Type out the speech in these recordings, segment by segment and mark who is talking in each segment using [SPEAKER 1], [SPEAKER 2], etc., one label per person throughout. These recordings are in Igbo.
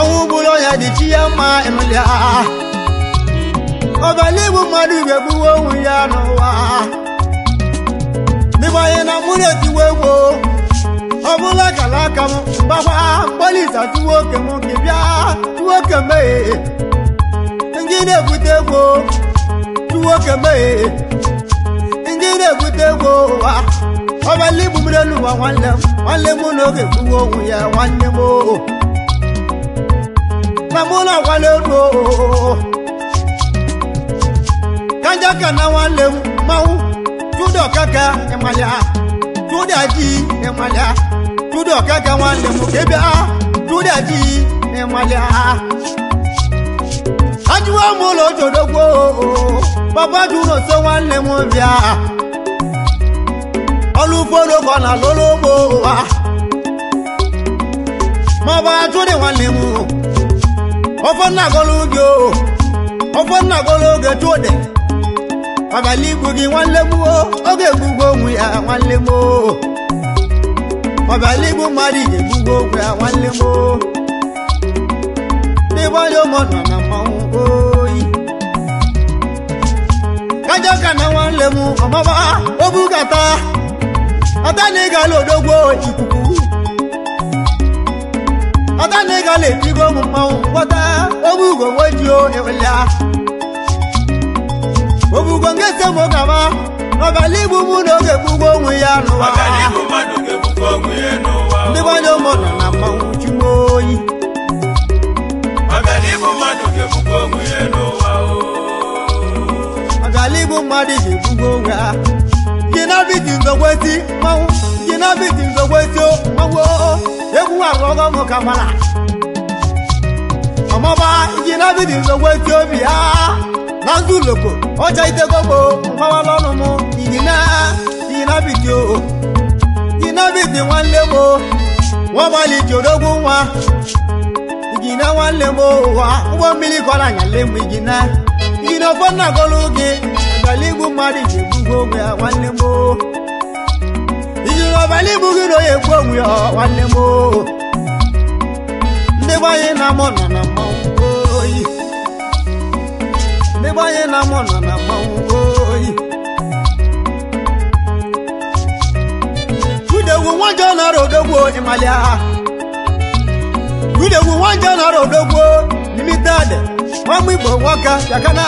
[SPEAKER 1] ọnwụ gburu ọnya dị chi ya mma emela ọbala igbu mmadụ igwe gbuwe onwe ya n'ụwa dịbanye na mkpụrụ etiwe egbo ọ bụla kala aka m mgbakwa mgbalịsa tuwo oke m nke bịa tuwo oke mmehie ndị na-ebute egbo tuwo oke mmehie ndị na-ebute egbo ụwa ọbala igbu mmiri elu nwa nwanne m nwanne m n'oge gbuwe onwe ya nwanne m oo Ramona Walero Kanjaka na wale mau Judo kaka emalia, Juda ji emalia, Judo kaka wale mukebe Juda ji emaya Ajuwa mulo jodogbo Baba juno so wale mwambia Olufolo kona lolobo Maba jude wale mu ofe nnagolo gị o ofe nnagolo oge tuode abalị igbu gị nwanne m oge egbugbo onwe ya nwanne m abalị igbu mmadụ iji egbugbo onwe ya nwanne m n'ebe onye ụmụ nọ na mmanwụ oyi kajọ ka na nwanne m ọmaba obugata ọta na ịgala odogbo ikuku ọta na ịga la ejigo ụmụ mmanwụ kpọta ogbe ugo wejuo ewelea obugo nke eze mụ gaba n'ọbala igbu mụ na oge onwe ya n'ụwa ndị gbanye ụmụ na na mmanwụ oyi
[SPEAKER 2] ọgala igbu mmadụ onwe
[SPEAKER 1] ya mmanwụ mmanwụ egwu agọghọ m ka mara ọmọba ijina nsogbu zogbo obi ha na ndụ loko ọcha itegogbo mgbawala ọnụ m iji bidi o ijina bidi nwanne m nwabalị nwa nwanne m ụwa ụgbọ mmiri kọrọ anyala m ijina na ọfọ gị mmadụ ji egbugbo onwe ya nwanne m abalị ibu gị na onye kwu ya nwanne m ndị gbanye na mụ nọ na mmanwụ oyi ndị gbanye na mụ nọ na mmanwụ oyi gudegwu nwajọ nara odogwu ịmalịa gudegwu nwajọ nara nwa igbo nwoke bịakana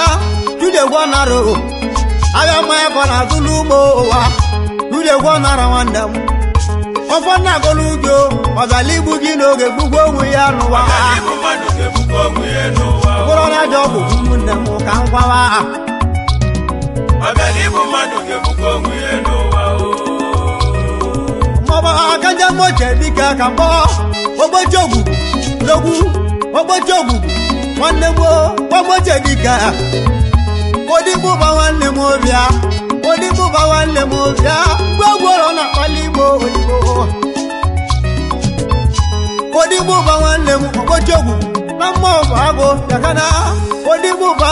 [SPEAKER 1] gudegwu nara agha mmanya ka na-azụ ụwa egwu ọnara nwanne m ọfọ na-agọla ugo ọgala igbu gị n'oge gbugbo onwe ya n'ụwa bụrụ na aja ọgwụ ụmụnne m ka m gwawa ha maọbụ dịka ka mkpọ ogbochi ogwugwu logwu ogbochi ogwugwu nwanne gboo gbamoche dịka odigbo nwanne m obia baba nwanne m bịa gwagworo na akpali igbo odigbo ụba nwanne m okpochiogwu na mmụọ bụ agụ yakana odigbo ụba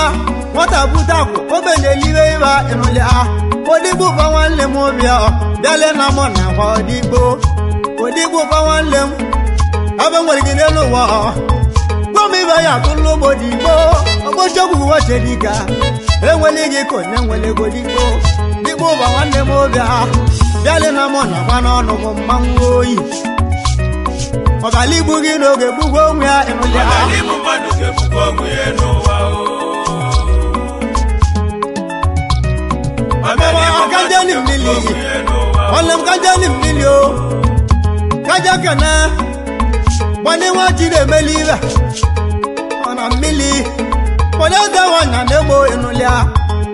[SPEAKER 1] nwata bute akwụ na eliwe ịba ịnụlịa odigbo ụba nwanne m bịa bịale na na odigbo odigbo ụba nwanne m abe nwere gị n'elu ụwa gwam ibe ya atụ n'ụgbọ digbo okpochiogwu wechedika enwele gị konye nwele ego igbo ụba nwanne m obi ha na mụ na gba n'ọnụ m mmanwụ oyi ọbala igbu gị n'oge gbugbo onwe ya enwele ha kajani mmiri m kajali mmiri o kaja kene nwanne nwa jiri emeli ibe ọ na mmiri onye dị nwanyị na-egbo enuli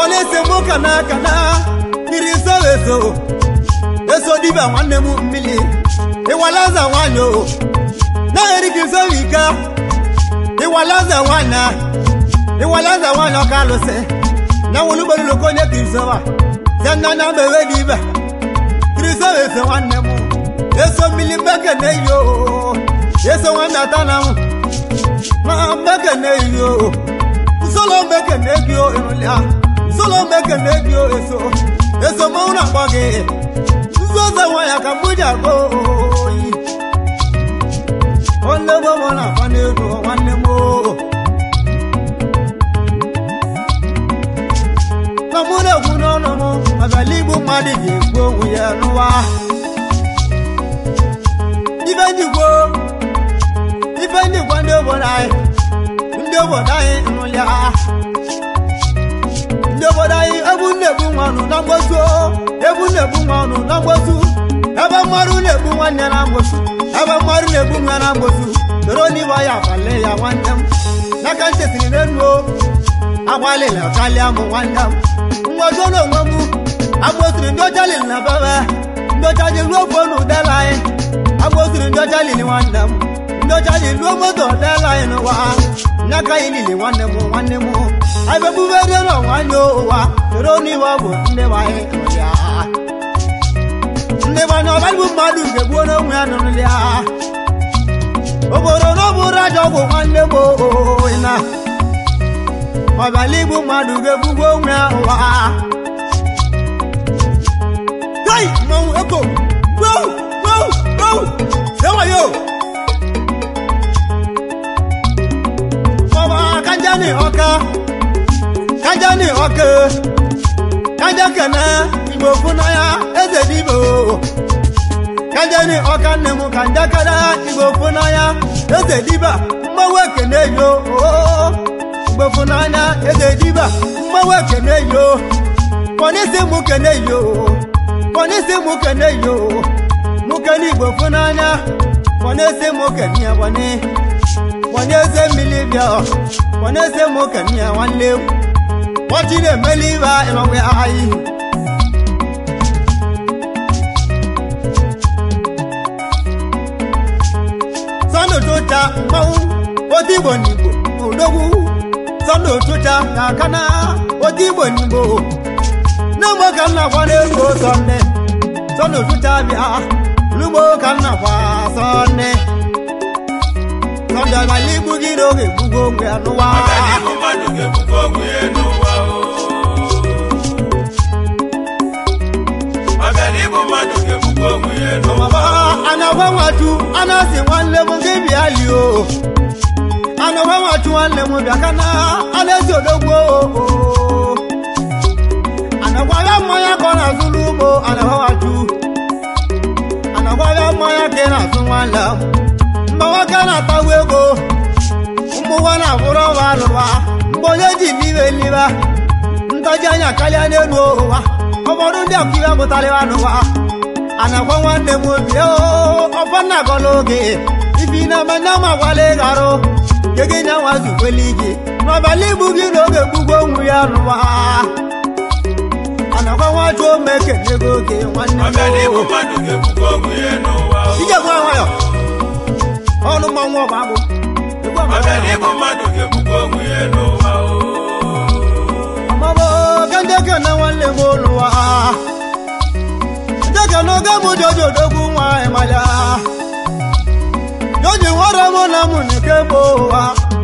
[SPEAKER 1] ọ na-ese m ụka n'aka na mmiri soeso eso dibia nwanne m mmiri ịwalaza nwanyị o na-erika isowe ike ịwalaza nwanyị ịwalaza nwanyị ọka alụsị na nwụlugbololoko onye krisowa zena na mewe gị ibe krisoeso nwanne m eso eso na solo mbeke nebio emulia solo mbeke nebio eso eso mauna kwage zoza waya kamuja go onde bo mona fane go wanne mo namune kuno nomo abalibu madi yego uya nuwa ibendigbo ibendigbo nde bo nai ndebodai nụlịa ndebodai egwu na-egbu nwanụ na mgbosu egwu na-egbu nwanụ na mgbosu ebe mmadụ na-egbu nwanne na mgbosu ebe mmadụ na-egbu nwa na mgbosu soro n'iwe ya abalị ya nwanne m n'aka ntị siri n'elu agbalịla karịa m nwanne m mgbosu n'onwe m agbosiri ndị ọcha lili na bebe ndị ọcha ji ruo ofe n'udela anyị agbosiri ndị ọcha lili nwanne m ndị ọcha ji ruo moto ọdela anyị n'ụwa n'aka anyị niile nwanne m nwanne m anyị bebubere n'ọnwa anyị ụwa soro n'iwe bụ ndị anyị ndị gbanye ọbagbụ mmadụ ga-egbuo n'onwe ya nụrụli ya obodo n'ọbụrụ aja ọgwụ nwanne m na ọbala igbu mmadụ ga-egbugbo onwe ya ụwa Hey, mmanwụ eko, wow, wow, wow, sewayo! kajani ọka kajani ọka kajakana igbo funa ya eze dibo kajani ọka nne m kanjakara igbo funa ya eze diba mgbawa ekene yo igbo funa ya eze diba mgbawa ekene yo kọnisi mụ kene yo kọnisi mụ kene yo mụ kene igbo funa ya kọnisi mụ kene ya kọnisi. onye eze mmiri bịa onye eze m okenye ya nwanne m ọchị na-emeli ibe ịnọwe anyị sọnụtụcha mmanwụ otu igbo n'igbo odogwu sọnụtụcha na aka na otu igbo n'igbo ka m na-agwa nne bịa olugbo ka m na ọdọgbala gị n'oge egbugo onwe ya nwatu nwanne m gị bịa lio anagwa nwatu nwanne m bịa ka na ana ya mmanya ka ọ na-azụ n'ugbo nwatu ya mmanya ka ị na-azụ nwanne ife na-akpagbu ego mgbụwa na-abụrụ ọwa alụwa mgbe onye ji m iwe n'iwe anya karịa n'elu ụwa ọbọdụ ndị ọkaiwe pụtara n'ụwa a na nwanne na gwala ịgharụ nwa zukwela igi n'ọbala igbu
[SPEAKER 2] gị ọnụ mmanwụ ọba bụ ọganihu mmadụ ga-ebukwa onwe ya n'ụwa
[SPEAKER 1] mama kandeke na nwanne m ụlụwa ndeke na oge mụ joji odogwu nwanyị maya joji nwere mụ na mụ na ike bụ ụwa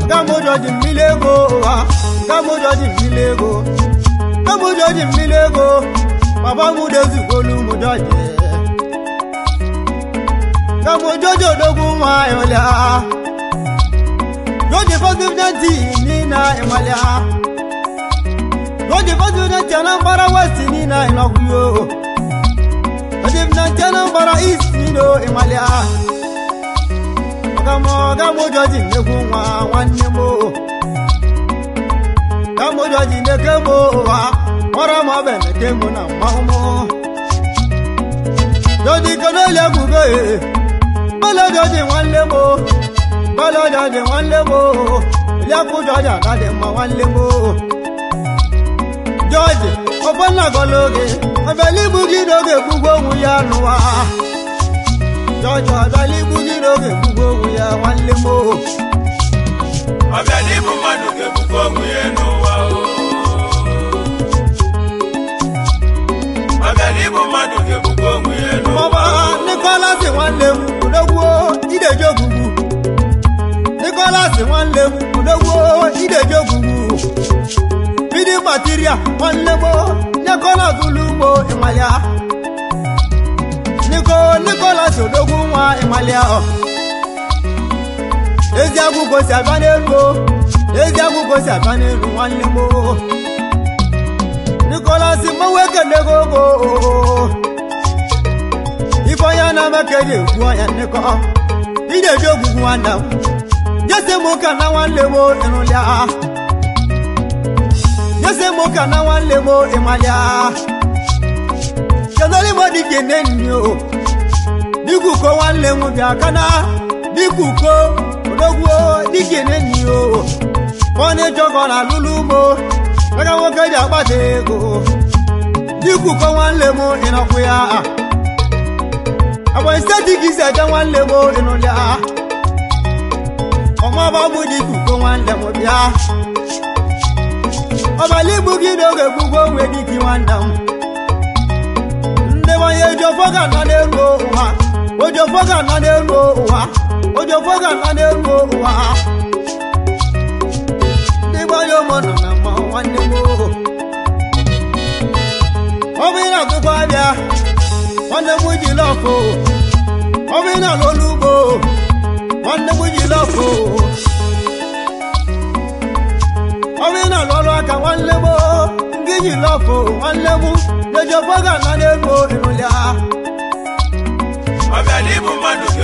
[SPEAKER 1] gamụ joji mmiri ego ụwa gamụ joji mmiri ego gamụ joji mmiri ego baba mụ dozigolu mụ joji kamojojo dogun ayola lóde fọsibidẹnti nínà ìmọlẹ lóde fọsibidẹnti anambra west nínà ìlọkùyò lóde fọsibidẹnti anambra east nínà ìmọlẹ ọgámọ ọgámọjọ ti nẹkùn wá nwanne mo ọgámọjọ ti nẹkẹ mo wá mọrọ mọ bẹẹ nẹkẹ mo nà mọ mọ lóde kọlẹ lẹkùn bẹẹ bọ́lọ́dọ̀ ni wọ́n lé wo bọ́lọ́dọ̀ ni wọ́n lé wo lẹ́kùnjọ́jà láti mọ wọ́n lé wo. George Ogbonnagologe Abẹlíbugídóge gbogbo ohun ya nù wá. George Abẹlíbugídóge gbogbo ohun ya wọ́n lé
[SPEAKER 2] wo. Abẹlíbugídóge gbogbo ohun ya nù wá o. Abẹlíbugídóge gbogbo ohun ya nù wá o. Bọ́bá
[SPEAKER 1] Nicholas wọ́n lé wo olówó ìdèjò gbùgbù Nicholas wọ́n léwu olówó ìdèjò gbùgbù bídí material wọ́n léwó nẹ́kọ́lá tuluwo ìmàlẹ́ à Nico Nicholas olówó wọn ìmàlẹ́ à eziagu kò sí àgbánirú eziagu kò sí àgbánirú wọ́n léwó Nicholas mọ̀wé kéde gbogbo. n'amaka ji egwu ọya nnekọ ị na-eji ogwugwu nwanne m jesi m ụka na nwanne m ịrụlịa jesi m ụka na nwanne m ịmalịa kedụrụ igbo dịka ene nyi o dịka uko nwanne m bịa kana dịka uko odogwuo dịka ene nyi o ọ na-eji ọgọ na alụlụ ugbo aka nwoke ji ko ya agba steeti ka isi aja nwanne m oge n'ụlịa ọmaba bụ dị ikuko nwanne m bịa ọbala igbu gị n'oge gbugbo onwe gị gị nwanne m ndebanye ojiọfọ ga-ana n'elu ụwa ojiọfọ ga-ana n'elu ụwa ojiọfọ ga-ana n'elu ụwa ndị gbanye ụmụ nọ na mma nwanne m ọ bụ ị na-atụkwa abịa nwanne m ji lọfụ omenala olugbo nwanne m ji lọfụ omenala ọrụ aka nwanne m gị ji lọfụ nwanne m lejoboga na na-ego ịrụlya
[SPEAKER 2] ọbịa n'ibu mmadụ gị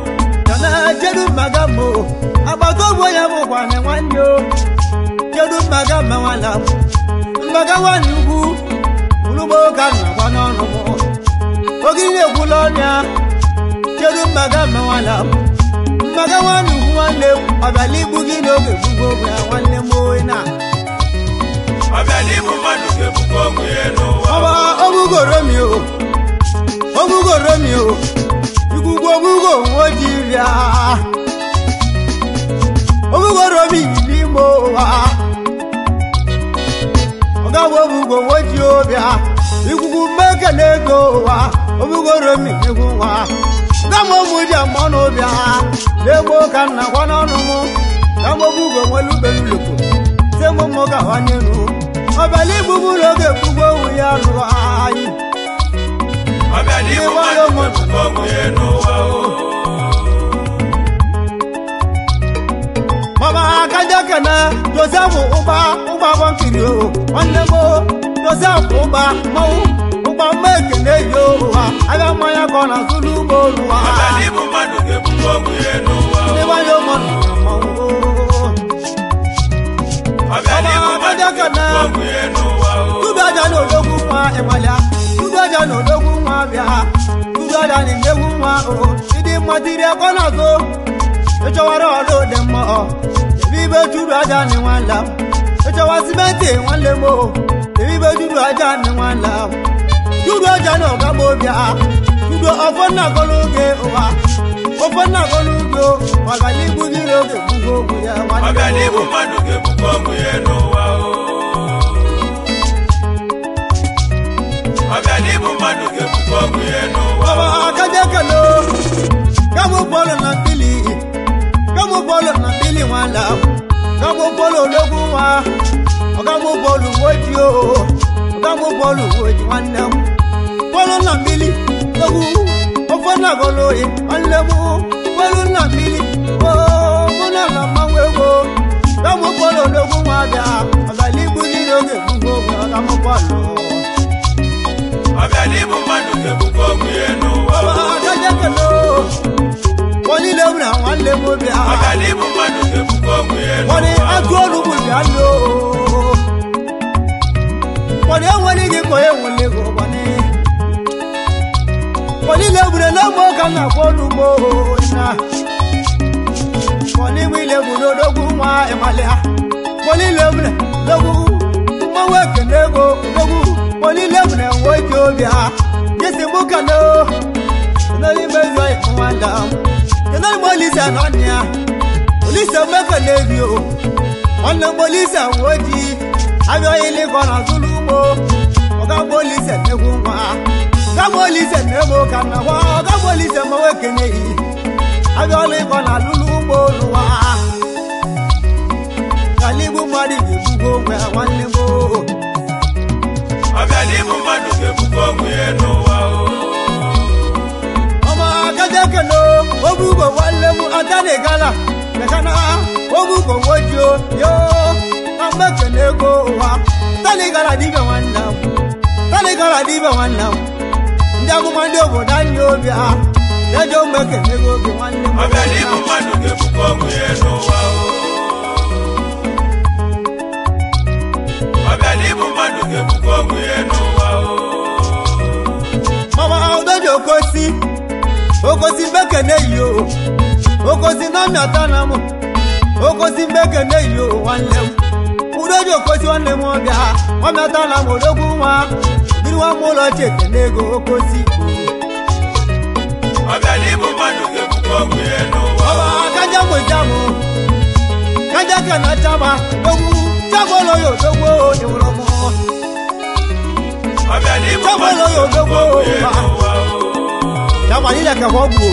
[SPEAKER 1] na kedu mmaga m agbata ọgbọ ya bụkwana nwanne o kedu Maga ma nwana mmaga nwanne ugwu ụlụmụka na-agba n'ọnụ m oge ihe ekwula ọnya kedu mmaga ma mmaga nwanne ugwu nwanne ọbịala igbu gị n'oge gbugbo ya nwanne m oyi na ọba chukwugwougo ojibịa obughorobi n'ime ụwa ọgawobugo nwoji ụbịa ikwugwu mmeke na ego ụwa obughorobi ụmụ nwa gamụmụji mmanụ ụbịa n'egbo ka nna gwa n'ọnụmụ gamobugo nwelubelulopo temụmụ gawanyelu ọbịala igbugbulu oge ekwugwo owu ya lụrụ
[SPEAKER 2] anyị kọ́mú
[SPEAKER 1] Mama akájọ kẹ̀mẹ́ Joseph Uba Uba wọn kiri mo Joseph Uba mọ́wú Uba mẹ́kẹ̀lẹ́ yóò wá, ayọ̀ mọ́ Zulu bọ́ọ̀lù wa. Bàbá ní mo máa
[SPEAKER 2] dùnkẹ́ fún kọ́mú ẹnu wa o. Ní wọ́n yóò mọ̀
[SPEAKER 1] Jordan yewu nwa o Chidi mwatiri ekona zo Echowara olo demo o Ebi be juru aja ni wan la Echowa simenti wan le mo Ebi be juru aja ni wan la Juru aja no ka bo bia Juru ofo na koluge owa Ofo na koluge o Wagalibu niroge bugogu ya Wagalibu manuge bugogu ya no wa o
[SPEAKER 2] Wagalibu manuge bugogu ya no baba
[SPEAKER 1] kaje kalo kamu bolo na pili kamu bolo na pili wala kamu bolo logu wa kamu bolo woji o kamu bolo woji wala bolo na pili logu, o na golo e alemu bolo na pili o mo na ma mawe wo kamu bolo logu wa da azali buli loge fun go kamu bolo
[SPEAKER 2] mabalibu maduke bukomu
[SPEAKER 1] yenu otajekelo wonilebuna wanlemu bia mabalibu maduke bukomu yenu woni agolubu bialo woni ewonigi koye wonligo woni wonilebuna lomo kana kolumo na wonilebuna odogun wa emalia wonilebuna logun mowekele ko logun olilewune woke obi ha yesi mbuka no enoli mbezo ikunwanda enoli molisa nọnia olisa mmefe n'ebi o nwanne molisa nwoji abịa ili gọna tụlụ ugbo ọga molisa n'egwu nwa ọga molisa n'egwu ka na nwa ọga molisa mmewe kenyeghị abịa ọlụ ịgọna akana ogugo nwoju yo na mmefe na ego ụwa tanigara dibe nwanne m ndị amụma ndị obodo anyị obi ha na-eji ụmụ na ego oge nwanne
[SPEAKER 2] m ya n'ụwa
[SPEAKER 1] mama okosi okosi mbeke na-eyi o okosi na mịata na m okosi mgbe ekene yi nwanne m udoji okosi nwanne m ọbịa ọ mịata na m odogwu nwa biri nwa m ụlọ
[SPEAKER 2] ego okosi
[SPEAKER 1] kaja ka na chama ogwu ya m ya ma ya ka ọ gbuo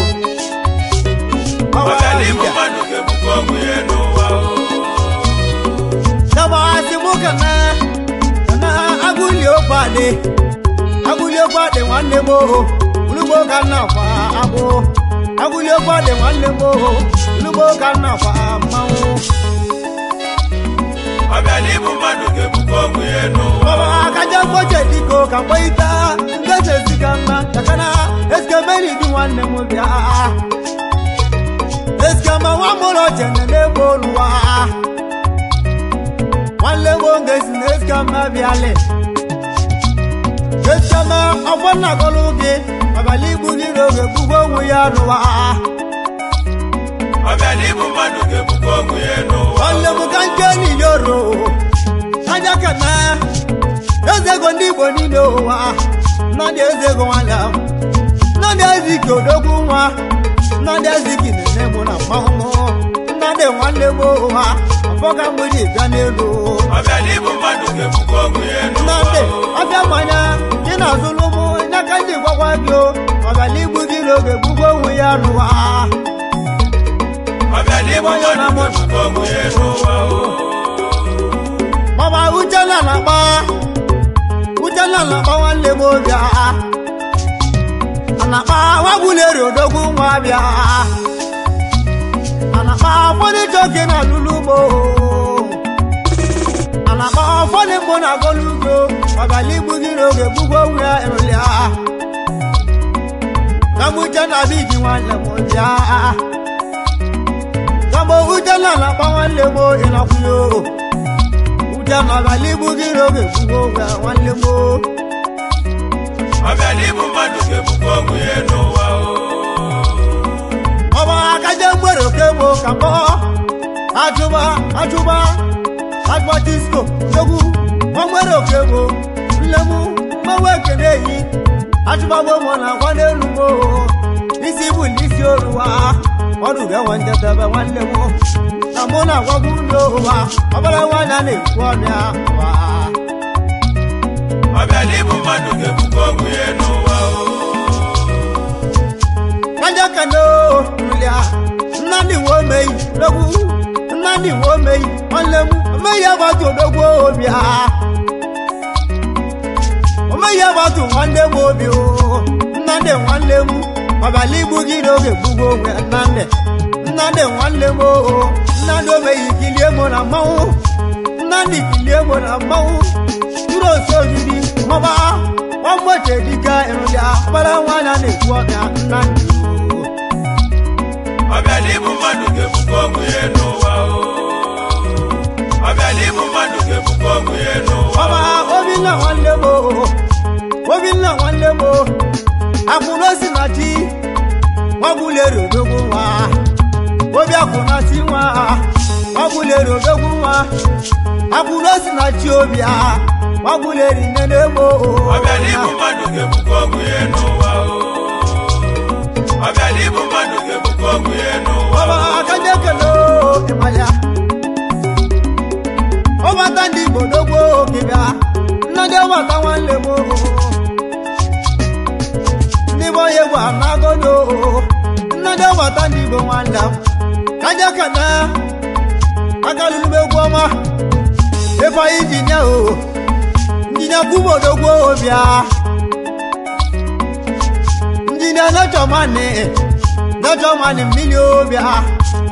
[SPEAKER 1] Sabasi muka na na aguli opade aguli opade nwanne mo ulugbo ka na fa abo aguli opade nwanne mo ulugbo na fa mmanwụ.
[SPEAKER 2] Ọbịala ịbụ mmadụ ga-ebukwa ọgwụ ya
[SPEAKER 1] n'ụwa. Baba akaja mkpoche dịka ụka mkpọ ita, ndị eze ziga mma, kakana esikemeri dị nwanne ma ọ mụrụ jene n'ebe oluwa nwanne nwoke si na ezioma bịale ezioma ọgbọ gị abalị igbu niile oge gbugbo onwe ya n'ụwa
[SPEAKER 2] nwanne m ka nke
[SPEAKER 1] niile oro anya ka eze ego ndị igbo niile ụwa nọ na eze ego nwanne m nọ eze ike odogwu nwa nọ mmanwụ nnadị nwanne gboo ha ọbọga mmiri bịa n'elu nnadị ọbịa mmanya dị na-azụlụ ụmụ n'aka ndị gwakwa gị ọbịala igbu dị n'oge gbugbo onwe ya rụwa mama uchenna na-akpa uchenna na-akpa nwanne m obi na-akpa nwa bịa ọfọdụ joke na lulugbo ana akpa ọfọdụ mgbo na agolugbo ọgala igbu gị n'oge gbugbo onwe ya erụlịa gagbo uche na bigi nwanne m bịa gagbo uche na na-akpa nwanne m ịnakwụnye o uche na ọgala igbu gị n'oge we onwe ya nwanne m o
[SPEAKER 2] ọbịa n'ibu mmadụ ga-egbukwa onwe ya n'ụwa o
[SPEAKER 1] na okegbo ka kpọọ ajụba ajụba agba disko egwu oke nlemu mmanwụ ekene eyi ajụbagbomo na agwa n'elu moo isi bụ n'isi oruwa ọrụ urenwanjedebe nwanne m na mụ na agwago ụlọ ụwa ọbara nwaanyị
[SPEAKER 2] na-ekwu ọnya
[SPEAKER 1] nadi wo meyi dogu nadi wo meyi ọlẹmu meya bàtú dogu obi ha meya bàtú wande wo bi o nadi wanlemu babali bugi doge bugo wẹ nande nadi wanlemu o nadi omeyi kili emo na mawu nani kili emo na mawu duro soju di mọba wọn gbọdọ dika irun ya bala wọn na le bu ọkà
[SPEAKER 2] ọbẹ̀límù mọ́dùkẹ́ fúnkọ́ mu ẹnu wa o ọbẹ̀límù mọ́dùkẹ́ fúnkọ́ mu ẹnu wa o. ọba
[SPEAKER 1] omi náà wọn lé wo omi náà wọn lé wo àkùnrin sì máa jí wọn kú lè rò lógún wa omi àkùnrin sí wa wọn kú lè rò lógún wa ẹnu. táwọn lè mú níbọ̀yẹ wà nágọ́dọ̀ nnadẹ́ wà tá níbo wọn là kájá kàná akálùlù bẹ gbọ́ ọmọ ẹ̀fọ́ ìjìnìá o ìjìnìá kúbọ̀dọ̀ gbọ́ òbíà ìjìnìá lọ́jọ́ máa ní lọ́jọ́ máa ní mílíọ̀ òbíà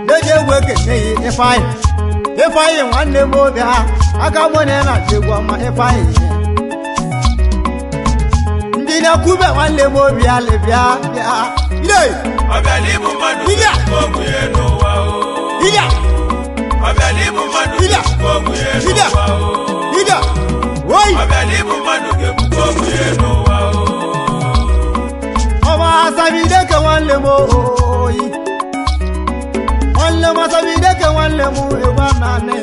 [SPEAKER 1] lọ́jọ́ ìwé kẹ̀kẹ́ yìí ẹ̀fọ́ yìí ẹ̀fọ́ yìí wọ́n lè mú òbíà akamọ́ ní ẹ̀ náà ṣe gbọ́ ọmọ ẹ̀fọ́ yìí na kube wanne mo biya le biya
[SPEAKER 2] biya ile abali mu madu ile ko mu ye no wa o ile abali mu madu ile ko mu ye no wa o ile woi abali mu madu ke ko mu ye no wa o
[SPEAKER 1] ọmọ asabi de ke wanne mo oyi wanne mo asabi de ke wanne mo ewa nane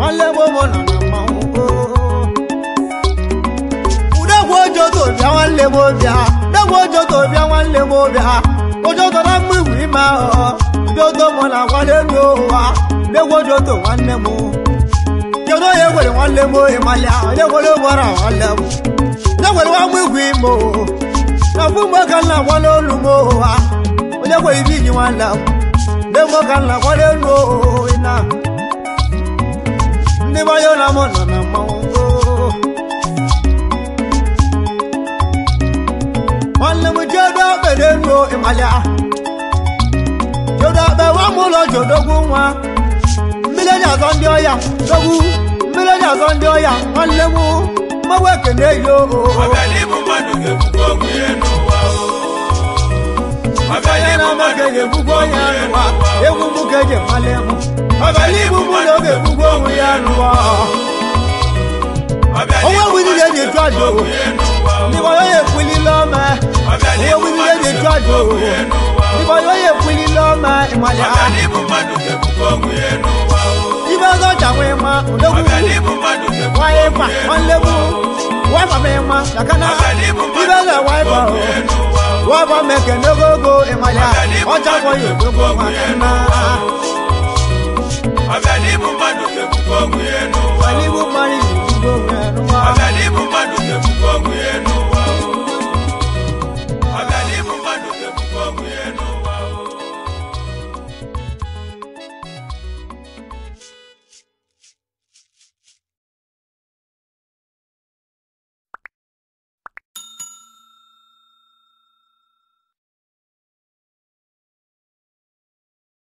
[SPEAKER 1] wanne mo mo nana. ojoto bịa nwanne m bịa bịagwa ojoto bịa nwanne m bịa ojoto na mgbe iwu ime ahụ bịoto mụ na nwanne m ụwa bịagwa ojoto nwanne m kedu onye gwere nwanne m ohi malịa onye gwere gbara nwanne m onye gwere nwa mgbe iwu ime o na mgbe mgbe ka nna gwa n'olu m ụwa onye gwere ibi iji mo. m ndị mgbe ka nna gwa n'elu ohi na ndị gbanye na mụ nọ na mo. deruo ịmalịa jodobe nwa m ụlọ jodogwu nwa mmiri onye azọ ndị ọya dogwu mmiri onye azọ ndị ọya nwanne m mmanwụ ekene yo ga-egbugbu
[SPEAKER 2] onye anụwa egwu m ka eji mmalị m ọbịala igbu mmadụ ọ ga-egbugbu
[SPEAKER 1] onwe ya anụwa onwe m niile ji jụ ajụ Libo yoye kwili loma Ye wili ye de dwado Libo yoye kwili loma Imwale a Libo zo chakwe ma Udogu Waipa Onlebu Waipa mema Shakana Libo zo waipa Waipa meke nogogo Imwale a
[SPEAKER 2] Ochakwa yodogo wakana Agadibu madu kekukongu yenu Agadibu madu kekukongu yenu Agadibu madu Amen.